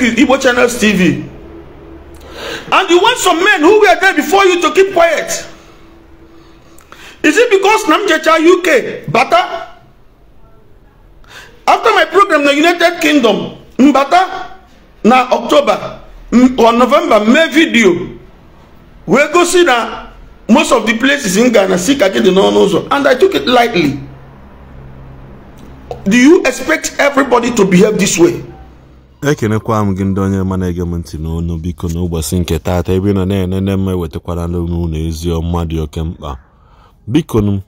you Igbo Channels TV. And you want some men who were there before you to keep quiet. Is it because Namjecha UK, Bata? After my program, the United Kingdom, Mbata, na October or November, May video, we go see that most of the places in Ghana seek again the non and I took it lightly. Do you expect everybody to behave this way? ekenekwa m gị ndị onye ma na-ege m ntị n'onu biko n'ụbọchị nke taata ebe ị nọ na-enene m ewetakwara n'ụlọ ezi ọma dị oke mkpa biko m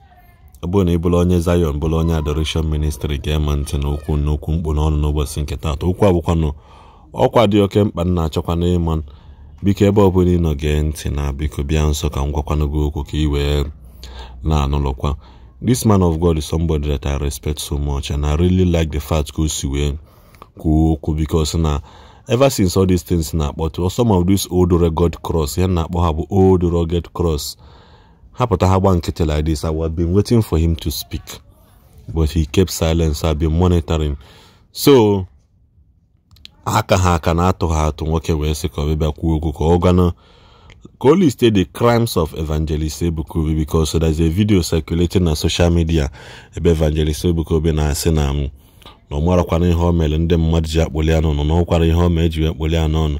abụrụ na ị bụrụ onye Zion bụrụ onye adoration ministri ga-eme ntị n'okwu n'okwu mkpu n'ọnụ n'ụbọchị nke taata okwu nụ ọkwa dị oke mkpa na-achọkwa ịma biko ebe ọ bụla ị nọ gee ntị na biko bịa nso ka m gwakwanụ gị okwu ka ị wee na-anụlọkwa this man of God is somebody that I respect so much and I really like the fact ka o si wee kwuo okwu because na ever since all these things na-akpọtụ some of these old regod cross ya na-akpọ ha bụ old rugged cross ha ha gba nkịtị like this I been waiting for him to speak but he kept silence I have been monitoring so aka ha aka na-atụ ha atụ nwoke wee sị ka ọbịbịa kwuo okwu ka ọ gwanụ ka o liste the crimes of evangelist ebuka bicos there is a video circulating na social media ebe evangelist ebukobi na-asị na m na ọ marakwana ihe o mere ndị mmadụ ji akpụli ya n'ọnụ na ọkwara ihe o mee ji wee kpụli ya n'ọnụ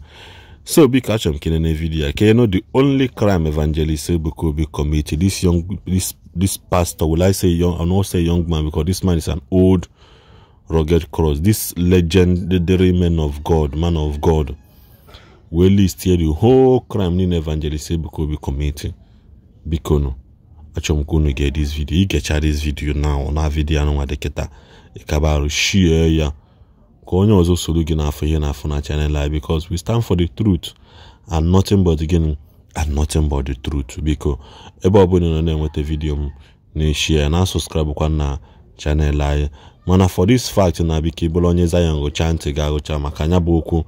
so biko achọrọ m kelene vidiyo ya ka you the only crime evangelist Ebuka Obi committed this young this this pastor will I say young I not say young man because this man is an old rugged cross this legendary man of God man of God will list here the whole crime niile evangelist Ebuka Obi committed biko nu achọrọ m ka unu get this video ị gechaa this video now na vidiyo anụnwa dịkịta ịkabarụ shie ya ka onye ọzọ soro gị n'afọ ihe n'afọ na chanel a because we stand for the truth and nothing but gịnị and nothing but the truth biko ebe ọbụla nọ na-enweta vidiyo m na-eshie na kwa na chanel anyị mana for this fact na biko ịbụrụ onye Zion gụcha ntị ga-agụcha maka anya bụ okwu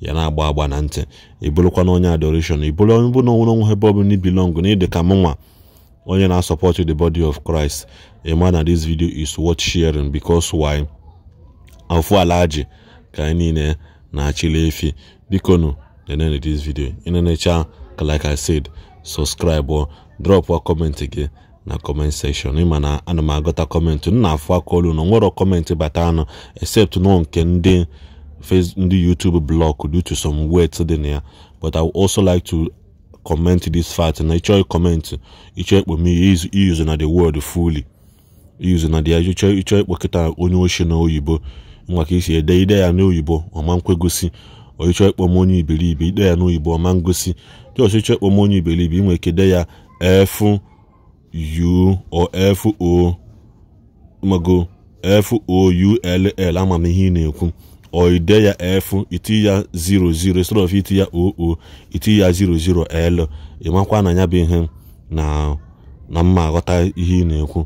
ya na-agba agba na ntị ịbụrụkwa na onye adoration ịbụrụ onye bụ na onwere onwe ebe ọbụla ibilong na ịdị ka mụnwa onye na supporting the body of christ a man na this video is worth sharing because why large, alaji ka anyị niile na-achịla the bikonu of this video In inenecha ka like i said subscribe or drop a comment gị na comment section ịma na ana m agụta kọmentị m na aka olu na nwere kọmentị bata anụ except nọ nke ndị Facebook, YouTube blog due to some words in there. But I would also like to comment this fact na ịchọghị comment ịchọ ịkpọ me use na the word fully use na the ịchọ ịchọ ịkpọ kịta onye ochie na oyibo nwa ka isi ede ide ya n'oyibo ọma nkwegosi ọchịchọ ịkpọ m onye iberibe ide ya n'oyibo ọma ngosi dị ọchịchọ ịkpọ m onye iberibe ị nwere ike ide ya efu u o efu o mago f o u ama m ihe ị na-ekwu or ide ya f iti ya 00 instead of iti ya oo iti ya 00l ịmakwa na ya bụ ihe na na mma aghọta ihe ị na-ekwu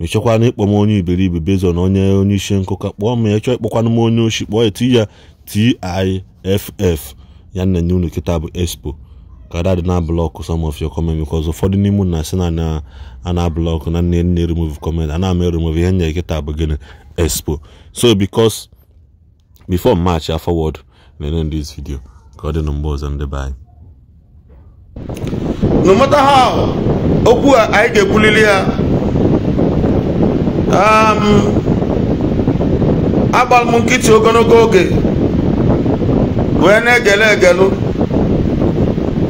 mechekwana ịkpọ m onye iberibe bezo na onye onye isi nkụka kpọọ m ya chọọ ịkpọkwana m onye oshi kpọọ eti ya tiff ya nna nye unu kịta bụ expo ka dadị na blọkụ some of your comment because ụfọdụ n'ime unu na-asị na a na blọkụ na nne nne remove comment a na-ama remove ihe nye kịta bụ gịnị expo so because before march a forward na-enye this video ka ọ dị na ọzọ anyị no matter how okwu a anyị ga-ekwulili ya um, agbara m nkịtị ogologo oge wee na-egele egelu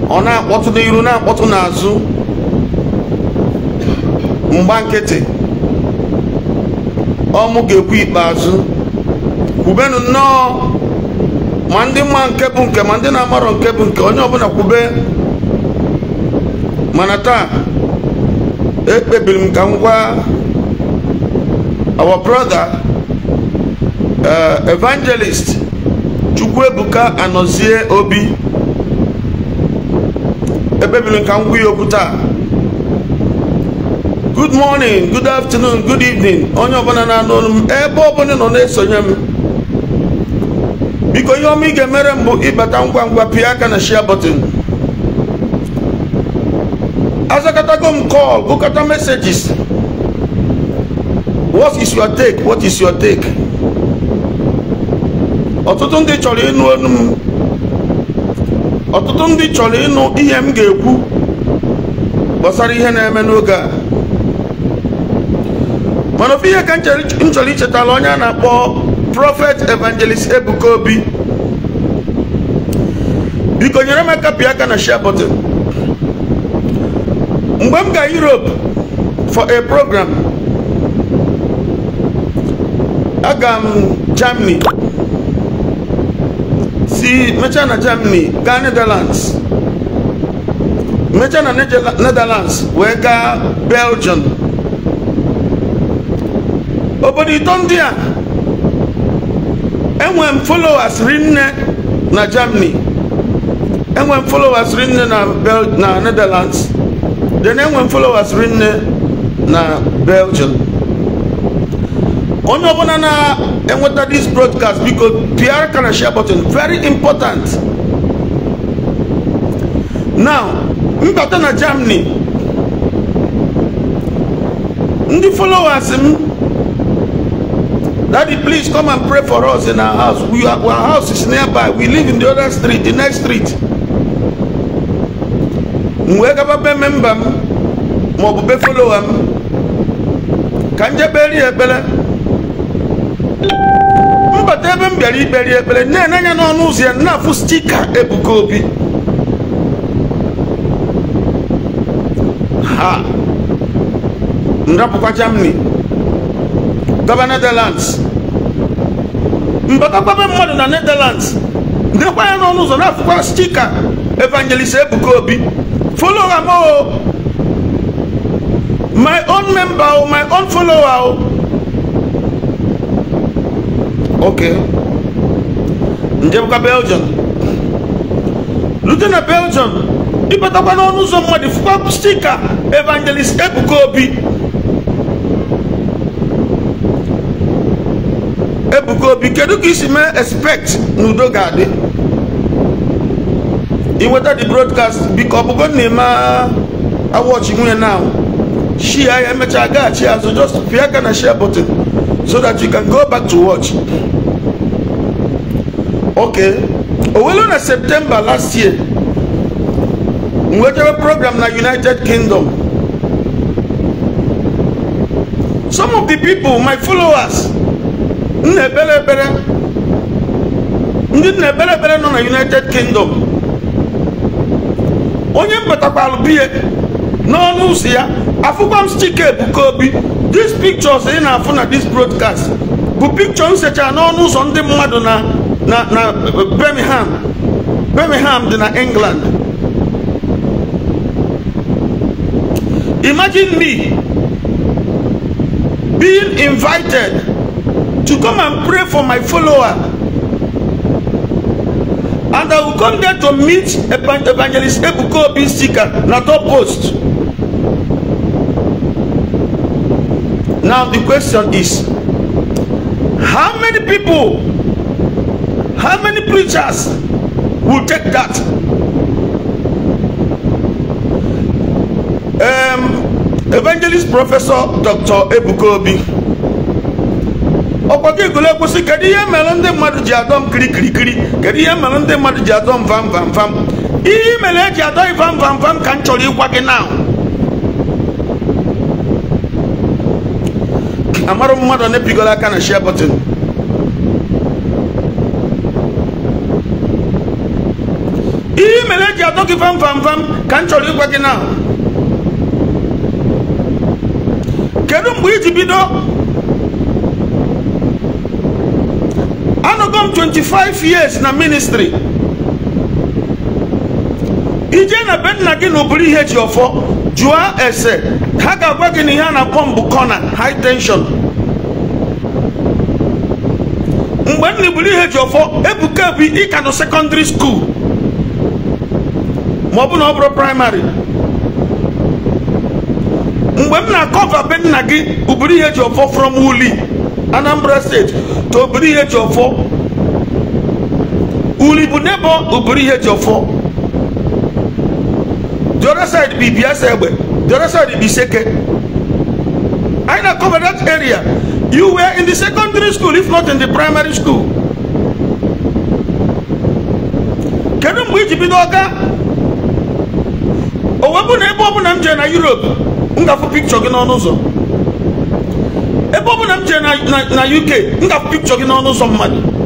ọ na-akpọtụ n'iru na-akpọtụ n'azụ mgba nkịtị ọmụ ga-ekwu ikpeazụ kwubenu nnọọ ma ndị mma nke bụ nke ma ndị na-amarọ nke bụ nke onye ọbụla kwube mana taa ekpebiri m ka m gwa our brother eh, evangelist ebuka anọzie Obi ekpebiri m ka m gwa ya okwu taa good morning good afternoon good evening onye ọbụla na-anụ olu ebe ọbụla nọ na-esonye m biko ihe ọma ị ga-emere m ịbata ngwa ngwa pịa aka na shia bọtịn azakatago m kọl gụkọta mesejis what is your take what is your take ọtụtụ ndị chọrọ ịnụ olu m ọtụtụ ndị chọrọ ịnụ ihe m ga-ekwu gbasara ihe na-eme n'oge a mana ofe ihe ka m chọrọ ichetala onye a na-akpọ prọfet evangelist ebuka obi biko nyere m aka pịa aka na share button mgbe m ga europe for a program aga m germany si mechaa na germany gaa netherlands mechaa na netherlands wee gaa belgium obodo ito ndị a enwe m followers rinne na Germany enwe m followers rinne na Bel na Netherlands then enwe m followers rinne na Belgium onye ọbụla na-enweta this broadcast biko pr kana share button very important now mbata na Germany ndị followers m Daddy, please come and pray for us in our house. We are, our house is nearby. We live in the other street, the next street. m gaba be memba m maọbụ be folowa m ka m jeberi ekpere mbata ebe m bịara ikperi ekpere na-ene n'ọnụ ụzọ ya na-afụ stika Ebuka Obi ha m rapụkwa gaba Netherlands mbatakwaba mmadu na Netherlands ndekwa ya n'ọnụ ụzọ na stika evangelist Ebuka Obi follow am o oh. my own member o oh, my own follower o oh. ok njebụka Belgium lute na Belgium ịbatakwa n'ọnụ ụzọ mmadụ fukwa stika evangelist Ebuka Obi obi kedu ka isi mee expect na udo ga-adị inweta the broadcast biko ọ bụgo na-eme awọchi nwunye na shia ya emechaa gaghachi azụ just pịa aka na share button so that you can go back to watch okay owelu na september last year nwetara program na united kingdom some of the people my followers na ekpere ekpere ndị nna ekpere ekpere nọ na united kingdom onye mbatakwalụ biye n'ọnụ ụzọ ya afụkwa m chike ebuka obi dis pictures ị na-afụ na dis broadcast bụ picture m secha n'ọnụ ụzọ ndị mmadụ na na na birmingham birmingham dị na england imagine me being invited to come and pray for my follower. And I will come there to meet Evangelist Ebuko Obi Sika na top post. Now the question is, how many people, how many preachers will take that? Um, Evangelist Professor Dr. Ebuko Obi. ọkwa gị gole kwụsị kedu ihe mere ndị mmadụ ji adọ m kirikirikiri kedu ihe mere ndị mmadụ ji adọ m vam vam vam ihe mere eji adọ vam vam vam ka m chọrọ ịgwa gị na amarụ mmadụ na-epigola aka na share button ihe mere eji adọ gị vam vam vam ka m chọrọ ịgwa gị na e kedu mgbe iji bido m 25 years na ministry ije na be gị na oburu ihe ọfọ jụọ ese ha ga-agwa gị na ihe a na mbụ kọna high tension mgbe nna iburu ihe ji ọfọ ebuka bụ ịka nọ sekọndịrị skuul ma ọ bụ na ọ bụrụ praịmarị mgbe m na-akọva be nna gị uburu ihe ji ọfọ from wuli anambra state to oburu ihe ji ọfọ ulibu nebo ụbụrụ ihe ji ọfọ the other side bụ ibiasa egbe the other side bụ iseke anyị na cover that area you were in the secondary school if not in the primary school kedu mgbe iji bido ọga owebụ na ebe ọbụla m jere na europe m ga-afụ pikchọ gị n'ọnụ ụzọ ebe ọbụla m jere na uk m ga-afụ pikchọ gị n'ọnụ ụzọ mmadụ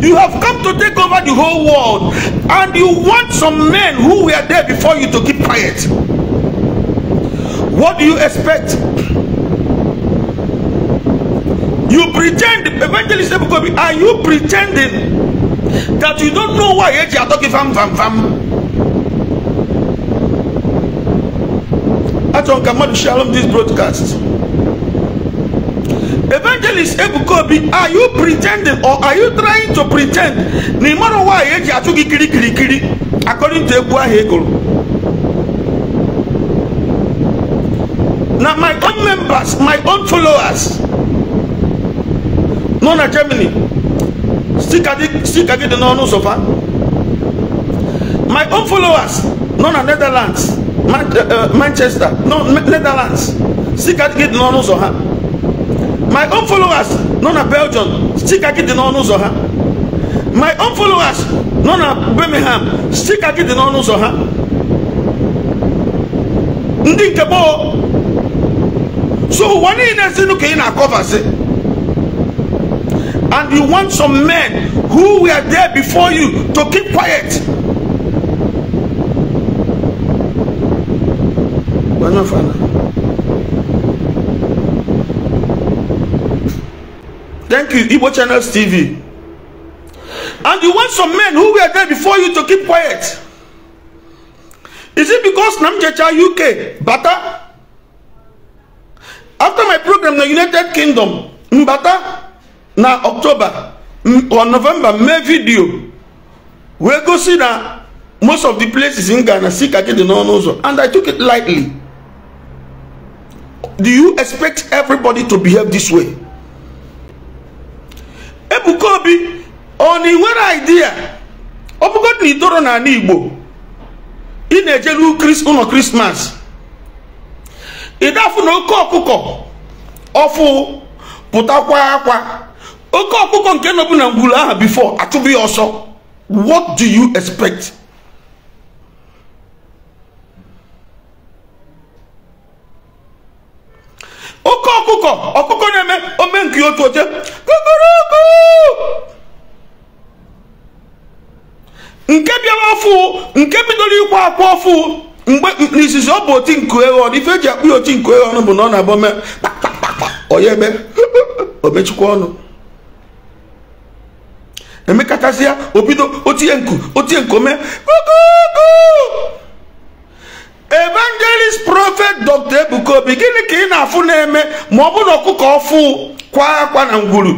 You have come to take over the whole world, and you want some men who were there before you to keep quiet. What do you expect? You pretend, evangelist are you pretending that you don't know why you are talking fam fam fam? Atron Kamal Shalom, this broadcast evangelist ebuka obi are you pretending or are you trying to pretend na ịmara ụwa anyị eji achụ gị kirikirikiri according to egwu ahụ egoro na my own members my own followers nọ na germany sika gị dị n'ọnụ ụzọ fa my own followers nọ na netherlands eh, eh, manchester no netherlands sika gị dị n'ọnụ ụzọ ha my own followers nọ na belgium sikaki dị n'ọnụ ụzọ ha my own followers nọ na birmingham sikaki dị n'ọnụ ụzọ ha ndị nke gboo so ụwa niile sinụ ka ị na-akọvasị and you want some men who were there before you to keep quiet Bueno, Fana. Thank you, Igbo Channels TV. And you want some men who were there before you to keep quiet. Is it because Namjecha UK, Bata? After my program, the United Kingdom, Mbata, na October or November, May video, we go see that most of the places in Ghana seek again the non-user. And I took it lightly. Do you expect everybody to behave this way? Ebuka Obi ọ na ị nwere idea ọ bụgodị na itoro n'ala Igbo ị na-ejelu ụlọ krismas ịdafụ na oke ọkụkọ ọfụ pụtakwa akwa oke ọkụkọ nke nọbụ na ngwuru aha bifo achụbụ ya ọsọ what do you expect? oke ọkụkọ ọkụkọ na-eme ome nke otu oche kụkụrụkụ nke bịara ọfụ nke bidoro ịkwa akwa ọfụ mgbe n'izizi ọ bụ oti nku eghọn ife eji akpụ ya oti nku eghọn bụ na ọ na-abụ ome oya eme omechukwa ọnụ emekachasịa o bido otinye nku otinye nke ome kụkụkụ evangelist prophet dr ebuka gịnị ka ị na-afụ na-eme ma ọ bụrụ na ọkụkọ ọfụ kwa akwa na ngwuru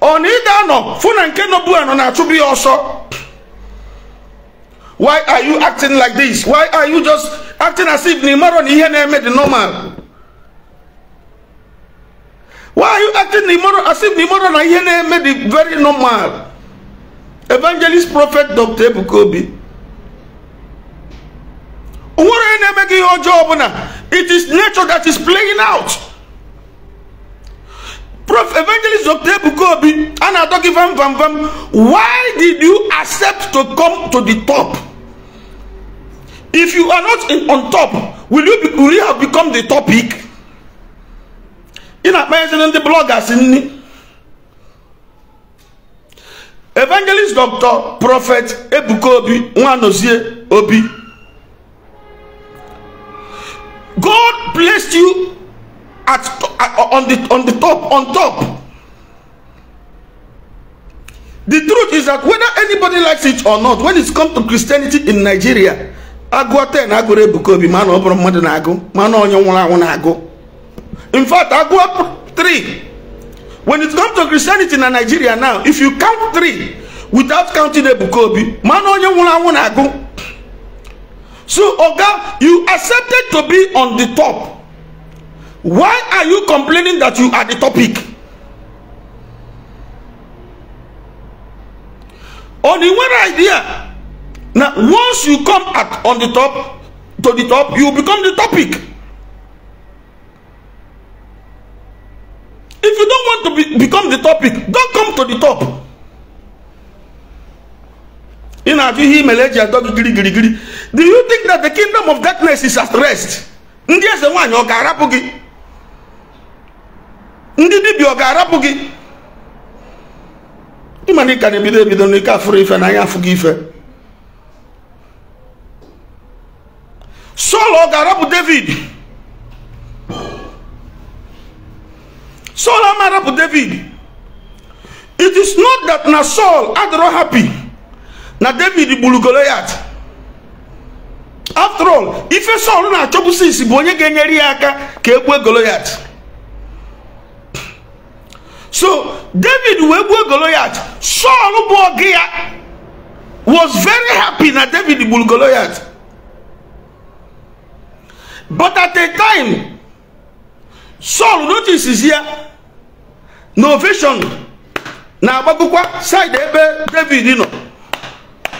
ọ na ị ga-anọ fụ na nke nọbu nọ na-achụbụ ya ọsọ why are you acting like this why are you just acting as if na ị marọ na ihe na-eme dị normal why are you acting as if na ị marọ na ihe na-eme dị very normal evangelist prophet dr ebuka onwere na-eme gị ihe ọjọọ ọbụla it is nature that is playing out prof evangelist dr ebuka obi a na-atọ gị vam vam vam why did you accept to come to the top if you are not in, on top will you, be, will you have become the topic ị na-akpanyezina ndị bloggers nni evangelist dr prophet ebuka obi nwanozie obi God placed you at, on the on the top on top. The truth is that whether anybody likes it or not, when it's come to Christianity in Nigeria, agụ ten agụrụ Ebuka Obi mana ọ bụrụ mmadụ na-agụ mana In fact, agụọ three. When it's come to Christianity in Nigeria now, if you count three without counting Ebuka Obi, mana onye nwụrụ anwụ na-agụ. So, Oga, you accepted to be on the top. Why are you complaining that you are the topic? Only one idea. Now, once you come at on the top, to the top, you become the topic. If you don't want to be, become the topic, don't come to the top. Ị na-ajụ ihe imeleji atọ gị gịrịgịrịgịrị do you think that the kingdom of darkness is at rest ndị eze nwanyị ọ ga-arapụ gị ndị dibịa ọ ga-arapụ gị ịma na ị ka na-ebido ebido n'ike afụrụ ife na anya afụ gị ife Sọl ọ ga-arapụ David Sọl ama arapụ David it is not that na Sọl adịrọ happy na David gburu Goliath after all ife Sọl na-achọbụsi isi bụ onye ga-enyere ya aka ka e gbuo Goliath so David wee gbuo Goliath Sọl bụ ọgụ ya was very happy na David gburu Goliath but at a time Sọl notices ya na ovation na-agbagokwa side ebe David nọ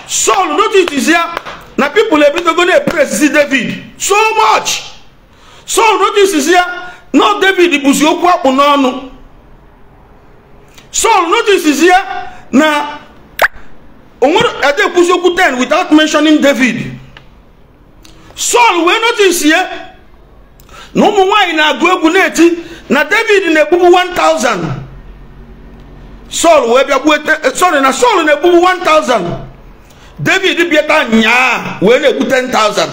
Sọl notices ya na pipụl ebidogo na-eburu esisi david so much so notices ya na david bụzi okwu akpụ n'ọnụ Saul notices ya na onwere edekwuzi okwu 10 without mentioning David Saul wee notice ya na ụmụ nwanyị na-agụ egwu na-eti na David na-egbugbu Saul sorry na Saul na-egbugbu 1000 david bịa taa nyaa wee na-ekwute 10,000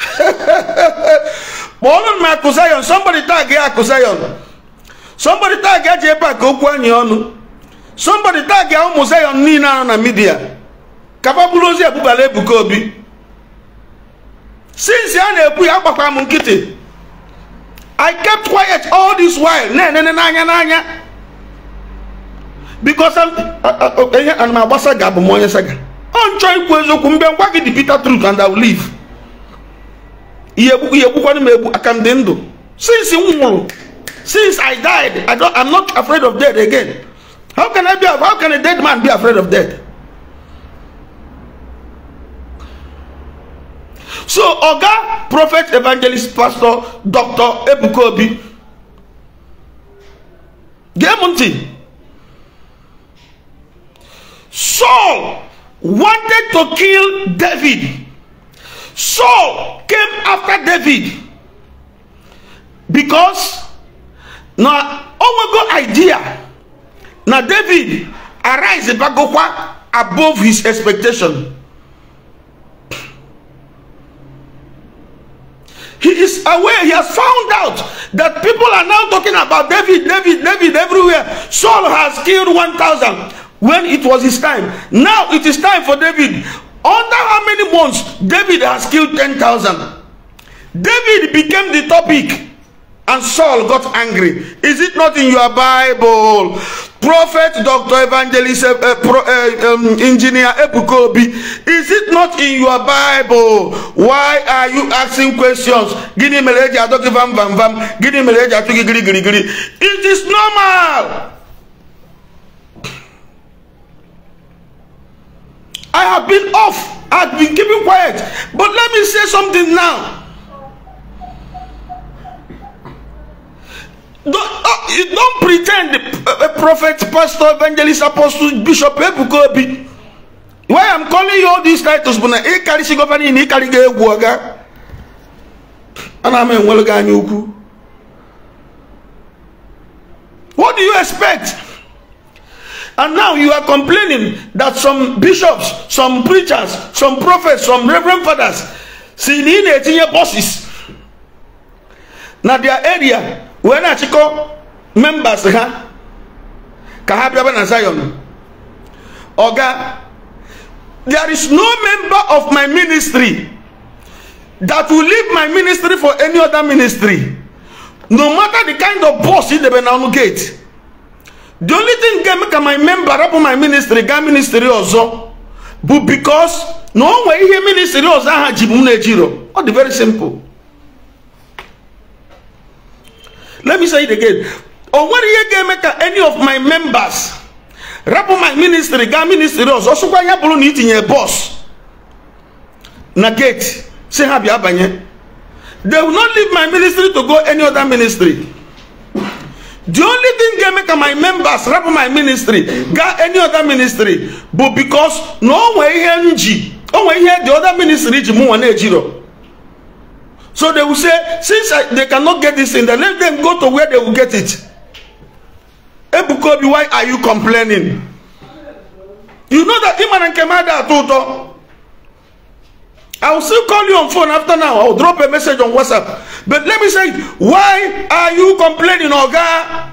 ọnụ m akụ zion somebody tag ya akụ zion somebody tag ya ji ebe a ka okwu anyị ọnụ somebody tag ya ụmụ zayon niile a na midia kaba bụrụ ozi ebubala ebuka obi since a na-ekwu ya agbakwa m nkịtị i kept quiet all this while na-enene n'anya n'anya biko am ana m agbasa ga abụ onye saga ọ nchọ ikwu eziokwu mbe ngwa dị Peter truth and I will leave ihe egbukwana m egbu since i nwụrụ since I died I don't, I'm not afraid of death again how can I be how can a dead man be afraid of death so oga prophet evangelist pastor dr ebukobi obi Saul wanted to kill David. Saul came after David because na onwego idea na David arise bagokwa above his expectation. He is aware, he has found out that people are now talking about David, David, David everywhere. Saul has killed 1,000. when it was his time. Now it is time for David. Under how many months David has killed 10,000? David became the topic and Saul got angry. Is it not in your Bible? Prophet, doctor, evangelist, uh, pro, uh, um, engineer Epukobi, is it not in your Bible? Why are you asking questions? It is normal. I have been off. I've been keeping quiet. But let me say something now. Don't, uh, don't pretend uh, a prophet, pastor, evangelist, apostle, bishop, Ebukobi. Why I'm calling you all these titles, but now, e carry sigofani in e carry ge guaga. And I'm in What do you expect? And now you are complaining that some bishops, some preachers, some prophets, some reverend fathers, see in 18 year bosses. Now their area, when I check members, huh? Kahabra and Zion. Oga, there is no member of my ministry that will leave my ministry for any other ministry. No matter the kind of boss in the Benanu gate. the only thing ga-eme ka my member rapụ my ministry gaa ministry ọzọ bụ because na o nwee ihe ministry ọzọ aha ji m na-ejiro very simple let me say it again o nwere ihe ga-eme ka any of my members rapụ my ministry gaa ministry ọzọ sụkwa ya bụrụ na itinye bọs na gate si ha bi abanye they will not leave my ministry to go any other ministry The only thing they make my members rap my ministry, got any other ministry, but because no way NG, oh way here the other ministry Jiro. So they will say, since I, they cannot get this in, then let them go to where they will get it. Ebukobi, why are you complaining? You know that Iman and Kemada are Toto. I will still call you on phone after now. I will drop a message on WhatsApp. But let me say, why are you complaining, Oga?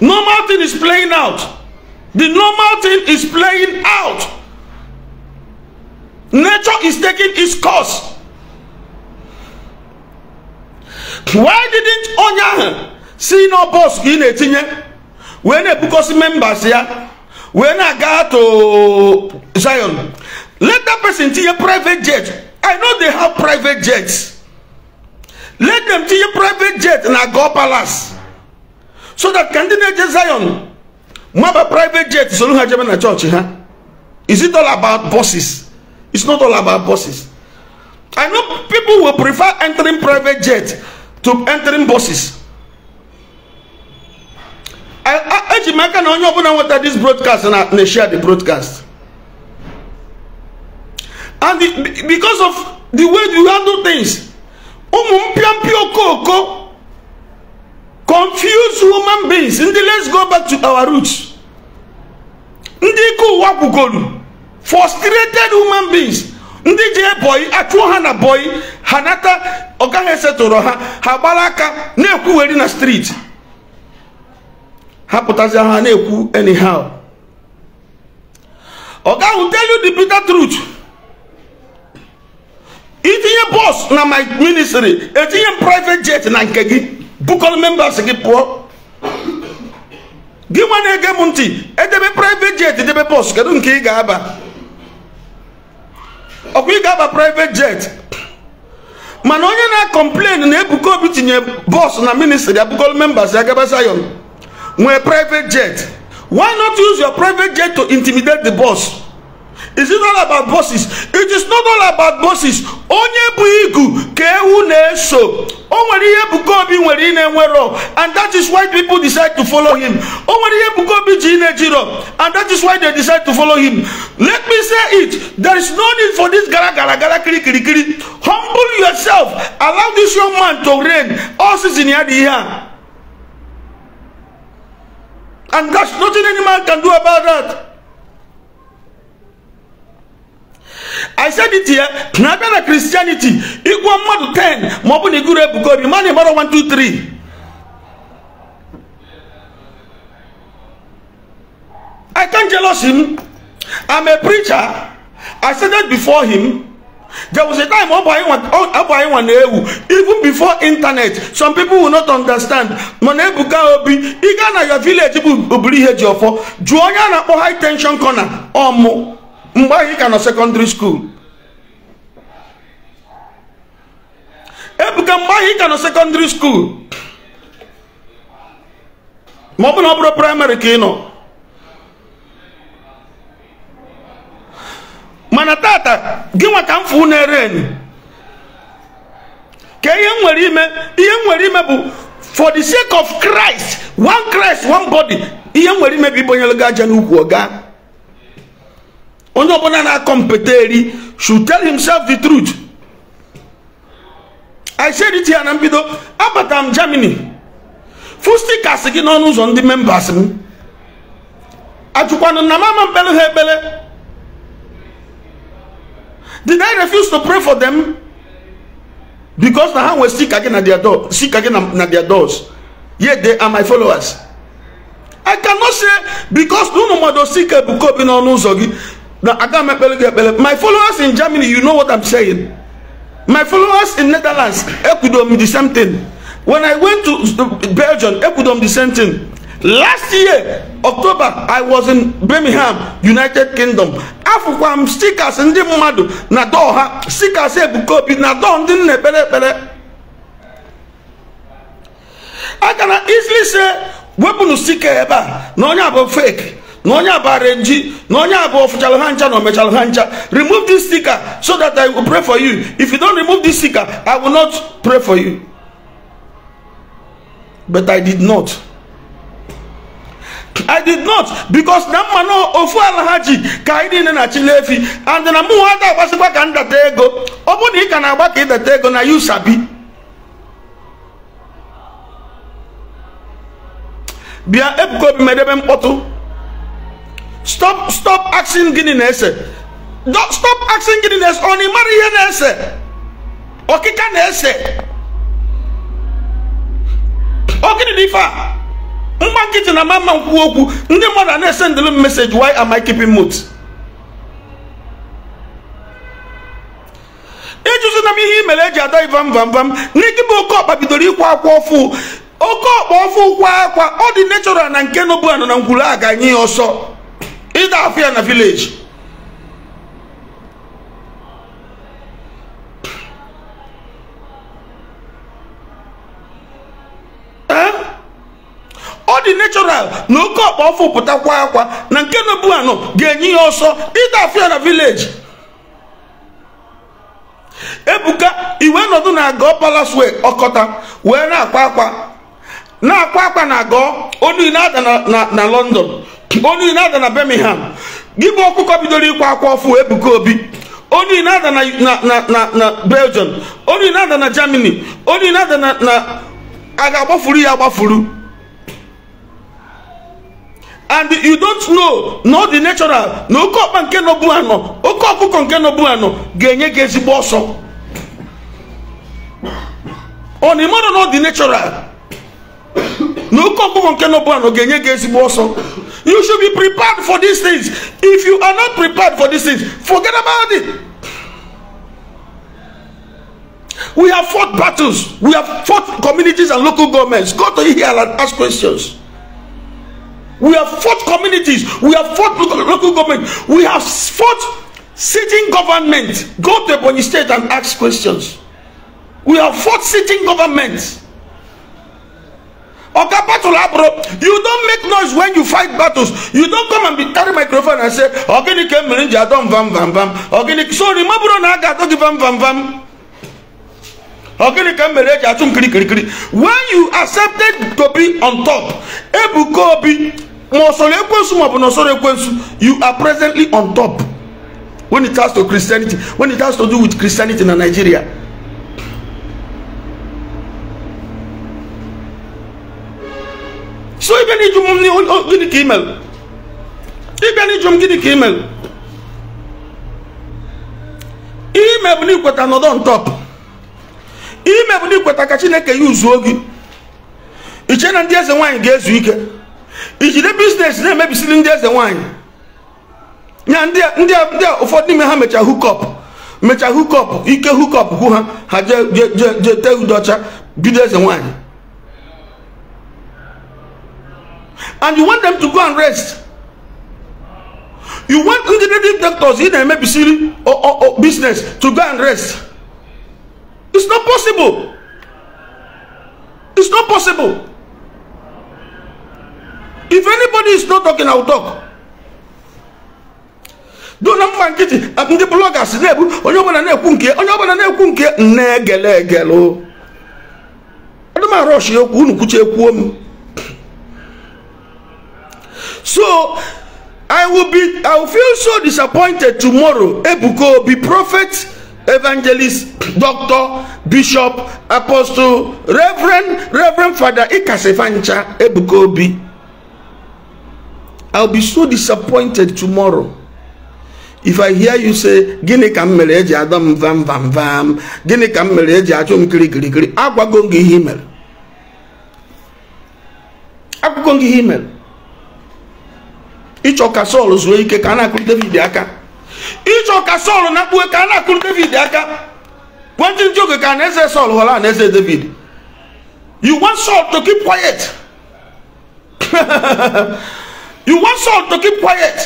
Normal thing is playing out. The normal thing is playing out. Nature is taking its course. Why didn't Onya see no boss in a tinye? When a book members here, when I got to Zion, let that person see a private jet. I know they have private jets. Let them your private jet in Agor Palace. So that candidate Zion, Maba private jet, so look at church, huh? Is it all about bosses? It's not all about bosses. I know people will prefer entering private jet to entering buses. I urge make an onye ọbụla this broadcast and na share the broadcast. And the, because of the way you handle things, ụmụ mpịampịa okooko confuse woman beings ndị let's go back to our roots ndị ike ụwa frustrated woman beings ndị jee bọyị achụọ ha na bọyị ha nata ọ gaghị esetụrụ ha ha gbara aka na-ekwugheri na streeti ha pụtazi ha na-ekwu anyhow ọ gaghị tell you the bitter truth itinye bọs na my ministry etinye m private jet na nke gị bukọrọ members gị pụọ gị nwa na-ege m ntị edebe private jet edebe bọs kedu nke ị ga-aba ọkwa ị ga-aba private jet mana onye na-akọmplen na Ebuka Obi tinye bọs na ministry abukọrọ members ya gaba nwee private jet why not use your private jet to intimidate the boss Is it all about bosses? It is not all about bosses. Onye bụ igu ka ewu na-eso. O nwere ihe Ebuka Obi nwere ị na-enwero and that is why people decide to follow him. O nwere ihe Ebuka Obi ji na-ejiro and that is why they decide to follow him. Let me say it. There is no need for this gara gara gara kiri kiri kiri. Humble yourself. Allow this young man to reign. All season ya dị ihe And that's nothing any man can do about that. i said it here na abịa na christianity ịgwọ mmadụ 10 ma ọ bụ na iguru ebuka obi one two three i can't jealous him i'm a preacher i said that before him there was a time ọbụanyịnwa na-ewu even before internet some people will not understand mana ebuka obi ị na your village bụ oburu ihe ji ọfọ jụọ onye a na-akpọ high tension corner ọmụ mgbe anyị ka nọ sekọndịrị skuul ebuka mgbe anyị ka nọ sekọndịrị skuul ma ọ bụ na ọ bụrụ praịmarị ka ị nọ mana tata gị nwa ka mfu na-ere enyi ka ihe nwere ime ihe nwere ime bụ for the sake of Christ one Christ one body ihe nwere ime bụ ibonyelu gị aja n'ukwu onye ọbụla na-akọmpeta eri should tell himself the truth i said it here na mbido abata m germany fustikas gị n'ọnụ ụzọ ndị members m ajụkwanụ na mama mkpere ha ekpere did i refuse to pray for them because na ha nwere sika gị na their doors yet they are my followers i cannot say because na ụmụ mmadụ sika ebuko obi n'ọnụ ụzọ gị my followers in germany you know what i'm saying my followers in netherlands ekudom the same thing when i went to uh, belgium ekudom the same thing last year october i was in birmingham united kingdom afụkwa m stickers ndị mmadụ na dọọ ha stickers ebuka obi na dọọ ndị nna ekpere ekpere i na easily say, wepụnụ stike ebe a na onye a bụ fake na onye abara nji na onye abụọ fụchara ha ncha na omechara ha ncha remove this sticker so that i will pray for you if you don't remove this sticker i will not pray for you but i did not I did not because na mmanụ ofu ala ha ji ka anyị niile na-achịla efi and na mụ ha ga-agbasikwa ka ndata ego ọ bụrụ na ị ka na-agba ka ịdata ego na you sabi bịa ebuko obi medebe mkpọtụ stop stop asking gịnị na-ese stop asking gịnị na-ese ọ na ịmara ihe na-ese ọkịka na-ese ọ gịnị na ife a nkịtị na mama nkwu okwu ndị mmadụ a na-ese ndịlụ m meseji why am I keeping mute ịjụzi na m ihe i mere eji ada ivam vam vam n'ikibụ oke ọkpa bidoro ịkwa akwa ọfụ oke ọkpa ọfụ kwa akwa ọ dị nechọral na nke nobụ anọ na ngwuru a ga-anye ya ọsọ ịda afọ ya na vileji eh? ọ dị natural na oke ọkpa ọfụ pụtakwa akwa na nke na-ebu anọ ga-enye ya ọsọ ịda afọ na vileji ebuka iwe nọdụ na agọ palas ọkọta wee na-akwa akwa na-akwa akwa na agọ onu na-ada na london onye na-ada na Birmingham gị bụ ọkụkọ bidoro ịkwa akwa ọfụ Ebuka Obi onye na-ada na Belgium onye na-ada na Germany onye na-ada na a agbafuru ya agbafuru and you don't know na ọ dị natural na oke ọkpa nke nọbu anọ oke ọkụkọ nke nọbu anọ ga-enye gị ezigbo ọsọ ọ na ịmara na natural you should be prepared for these things if you are not prepared for these things forget about it we have fought battles we have fought communities and local governments go to here and ask questions we have fought communities we have fought local, local government we have fought sitting government go to the state and ask questions we have fought sitting governments. Oga battle bro. You don't make noise when you fight battles. You don't come and be carry microphone and say, Ogini came Mirinja, don't vam vam vam. Ogini, sorry, Maburo Naga, don't vam vam vam. Ogini came Mirinja, don't kiri kiri kiri. When you accepted to be on top, Ebu Kobi, Mosole Ekwensu, Mabunasore Ekwensu, you are presently on top. When it has to Christianity, when it has to do with Christianity in Nigeria. so ị bịa n'iju m gịnị ka imel ị bịa n'iju m gịnị ka imel ihe ime bụ n'ikweta nọdụ ntọp ihe ime bụ n'ikweta ka chineke ya uzuo gị iche na ndị eze nwaanyị ga-ezu ike ijide biznes na-emebisiri ndị eze nwaanyị ya ndị ụfọdụ n'ime ha mechaa hukọp mechaa hukọp ike hukọp hụ ha ha jee jee jee tee udocha bido eze nwaanyị and you want them to go and rest you want integrative doctors in emebisiri or, or, or business to go and rest it's not possible it's not possible if anybody is not talking i will talk do na mma nkịtị ndị bloggers na-ebu onye ọbụla na-ekwu nke onye ọbụla na-ekwu nke nna egele egele adịm arọshi okwu unu kwuche ekwuo m So I will be I will feel so disappointed tomorrow. Ebuko be prophet, evangelist, doctor, bishop, apostle, reverend, reverend father Ikasefancha Ebuko be. I'll be so disappointed tomorrow. If I hear you say gịnị ka m eji adọ m vam vam vam gịnị ka m mere eji achụ m kirikirikiri agwago m gị ihe i mere agwago gị ihe i mere ịchọ ka sọl zuo ike ka a na-akụrụ david aka ịchọ ka sọl na kpuo ka a na-akụrụ david aka kwentị ndị oge ka na-eze sọl ghọrọ na-eze david you want sọl to keep quiet you want sọl to keep quiet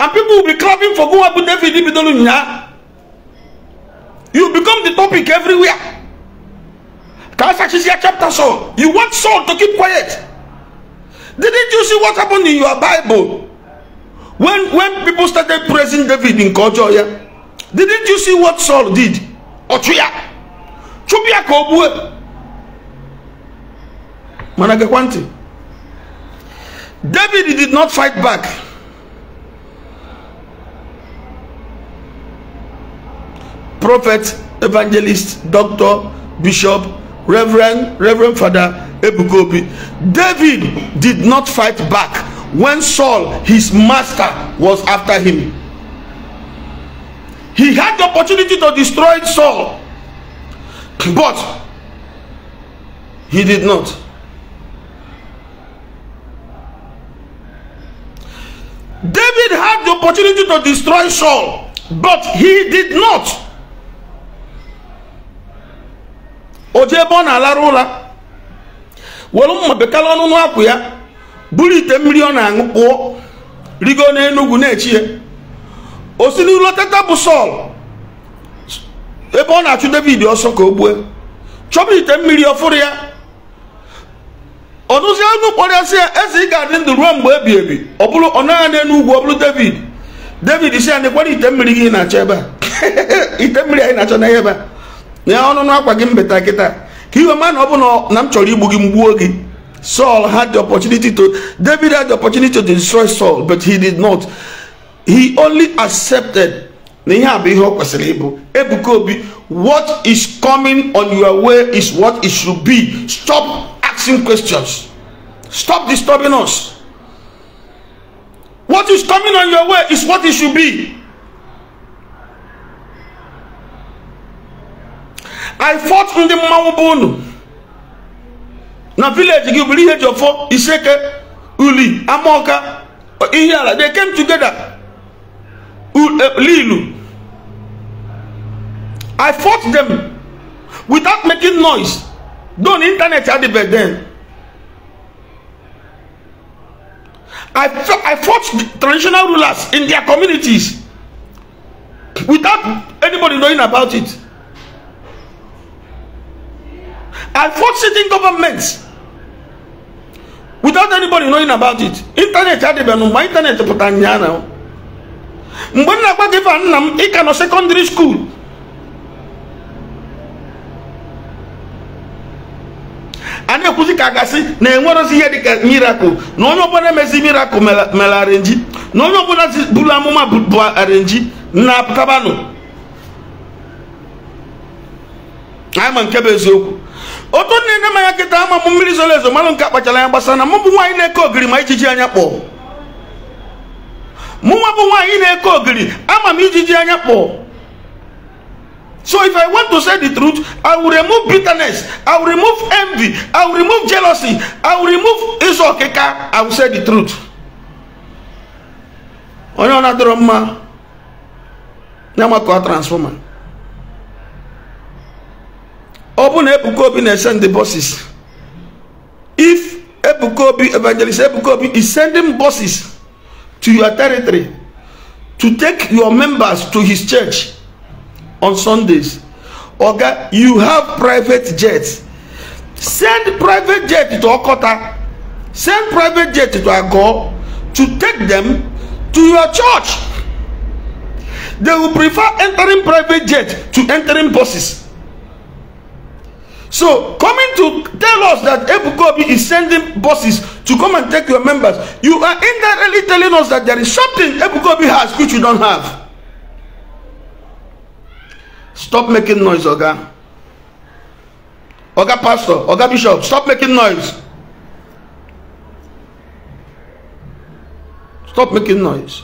and people will be clapping for go abụ david bidoro nyaa you become the topic everywhere ka a sachizie chapter sọl you want sọl to keep quiet Didn't you see what happened in your Bible? When, when people started praising David in culture, yeah? Didn't you see what Saul did? Ọchụya. Chụpụ ya Mana gekwa David did not fight back. Prophet, evangelist, doctor, bishop, Reverend Reverend Father Ebukobi. David did not fight back when Saul, his master, was after him. He had the opportunity to destroy Saul, but he did not. David had the opportunity to destroy Saul, but he did not. jee ebe ọ na-alarụ ụra were mma bekala ọnụnụ akwụ ya buru ite mmiri ọ na-aṅụ kpụọ rigo n'enugwu na-echi ya o si n'iru tata bụ sọl ebe ọ na-achụ david ọsọ ka o gbue chọba ite mmiri ọfụrụ ya ọnụzi anụ kpọrịasị ya eze ị ga-adị ndụ ruo mgbe ebi ebi ọ bụrụ ọ naghị n'elu ugwu ọ bụrụ david david si ya nekwara ite mmiri gị na-achọ ebe a ite mmiri anyị na-achọ n'ahịa ebe a nye ọnụnụ akwa gị mbeta kịta ka iwe ma na ọ bụ na m chọrọ igbu gị mgbuo gị Saul had the opportunity to David had the opportunity to destroy Saul but he did not he only accepted what is coming on your way is what it should be stop asking questions stop disturbing us what is coming on your way is what it should be I fought ndị mmanwụ bụ unu na village gị bụrụ ihe ji ọfọ iseke uli amaọka ihe ala they came together eh, lilu I fought them without making noise don internet had adịbe then I, I fought traditional rulers in their communities without anybody knowing about it. I fought sitting governments without anybody knowing about it ịntanetị adịbeghị mgbe internet pụtara mgbe m na-agwa gị nna m ị ka nọ sekọndịrị skuul a na-ekwuzi ka a gasị na enwerozi ihe dịka mirakụl na onye ọbụla emezi mirakụl mere arenji na onye ọbụla buru amụma bụ arenji na-apụtabanụ anyị ma nke bụ eziokwu ne niile Maya kita ama mumiri zolezo malo nka pa nke akpachara anya gbasara na mụ bụ nwaanyị na-eke ma ijiji anya kpọọ mụnwa bụ nwaanyị na ama mi ijiji anya so if i want to say the truth i will remove bitterness i will remove envy i will remove jealousy i will remove iso keka. i will say the truth Onyo na droma, nyama kwa the buses if Ebukobi evangelist Ebuka is sending buses to your territory to take your members to his church on Sundays oga you have private jets send private jet to Okota send private jet to Agor to take them to your church they will prefer entering private jet to entering buses so coming to tell us that Ebukobi is sending buses to come and take your members, you are indirectly telling us that there is something Ebukobi has which you don't have. Stop making noise, Oga. Oga Pastor, Oga Bishop, stop making noise. Stop making noise.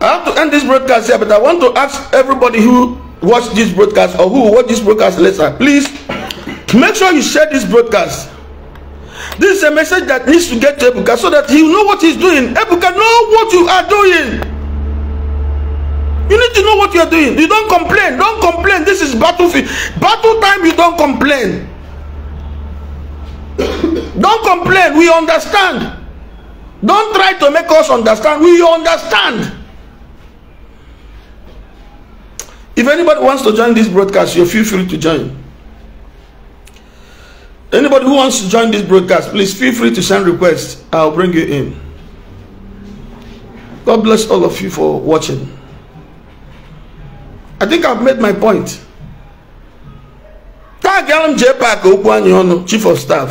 I have to end this broadcast here, but I want to ask everybody who watch this broadcast or who watch this broadcast later, please make sure you share this broadcast. This is a message that needs to get to Ebuka so that he will know what he's doing. Ebuka, know what you are doing. You need to know what you are doing. You don't complain. Don't complain. This is battlefield. Battle time, you don't complain. don't complain. We understand. Don't try to make us understand. We understand. If anybody wants to join this broadcast, you feel free to join. Anybody who wants to join this broadcast, please feel free to send requests. I'll bring you in. God bless all of you for watching. I think I've made my point. Tagala m JPAC okwu Chief of Staff.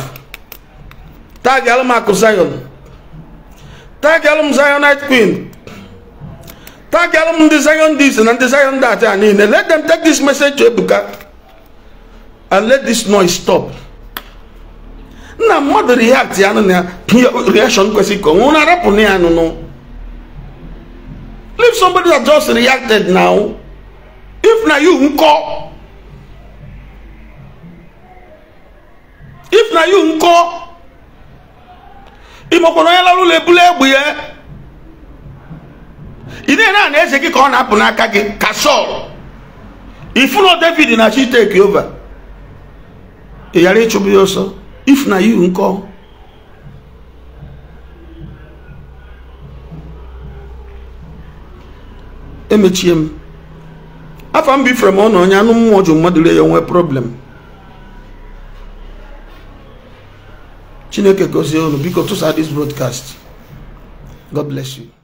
Tagala m Akụ Zion. Tagala Zionite Queen, tagiara m ndị Zion this na ndị Zion that and niile let them take this message to Ebuka and let this noise stop nna mmadụ react ya nụ na reaction kwesịrị ka onwe na arapụ na ya nụnụ leave somebody that just reacted now if na you nkọ if na you nkọ ịmakwana onye lara ụlọ ebule egbe ya ị na-ere a na eze gị ka ọ na-apụ n'aka gị ka sọl ifuno david na chi take over ị ghara ịchụbụ ya ọsọ if na you nkọ emechie m afọ m bifere m ọ na onye anụ mmụọ ju mmadụ ya nwee problem chineke gozie unu biko tụsa this broadcast god bless you